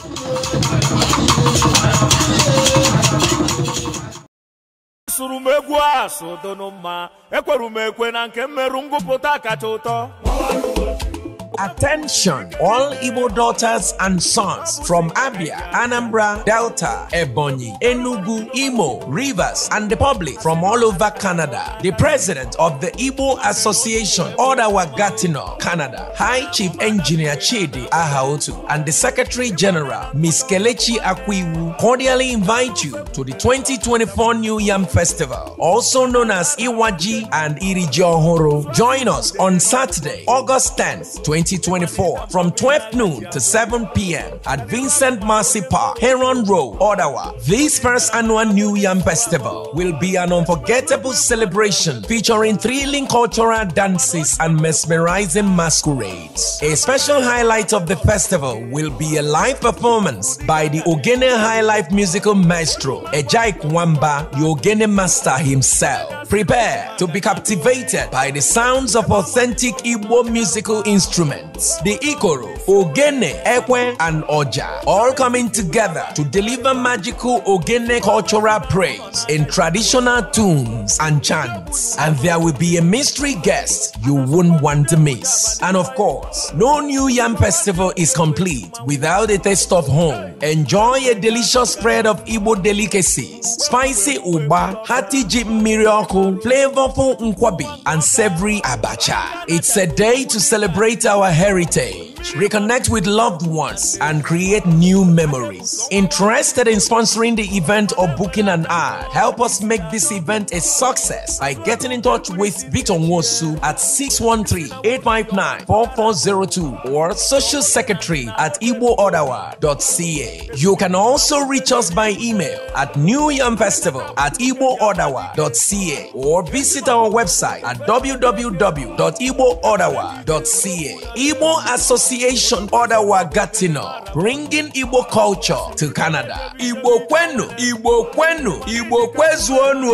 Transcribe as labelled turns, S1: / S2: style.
S1: asụrụ m egwu asụ dụnụ mma m ekwe na nke mmerụ ngụpụta kacha ụtọ Attention, all Igbo daughters and sons from Abia, Anambra, Delta, Ebonyi, Enugu, Imo, Rivers, and the public from all over Canada. The president of the Igbo Association, Odawa Gatineau, Canada, High Chief Engineer Chidi Ahaotu, and the Secretary General, Ms. Kelechi Akwiwu, cordially invite you to the 2024 New Yam Festival, also known as Iwaji and Iri Ohoro. Join us on Saturday, August 10th, 2024. 2024 from 12 noon to 7 p.m. at Vincent Marcy Park, Heron Road, Ottawa. This first annual New Yam Festival will be an unforgettable celebration featuring thrilling cultural dances and mesmerizing masquerades. A special highlight of the festival will be a live performance by the Ogene High Life musical maestro, Ejaik Wamba, the Ogene master himself. Prepare to be captivated by the sounds of authentic Igbo musical instruments. The Ikoro, Ogene, Ekwe, and Oja, all coming together to deliver magical Ogene cultural praise in traditional tunes and chants. And there will be a mystery guest you won't want to miss. And of course, no New Yam Festival is complete without a taste of home. Enjoy a delicious spread of Igbo delicacies, spicy uba, hati ji mmiri beautiful, flavorful nkwabi and savory abacha. It's a day to celebrate our heritage. reconnect with loved ones, and create new memories. Interested in sponsoring the event or booking an ad? Help us make this event a success by getting in touch with Victor Wosu at 613-859-4402 or Social Secretary at igboordawa.ca. You can also reach us by email at New Yam Festival at igboordawa.ca or visit our website at www.igboordawa.ca. Igbo Association Association Odawa bringing Igbo culture to Canada. Igbo kwenu, Igbo kwenu, Igbo kwezuonu.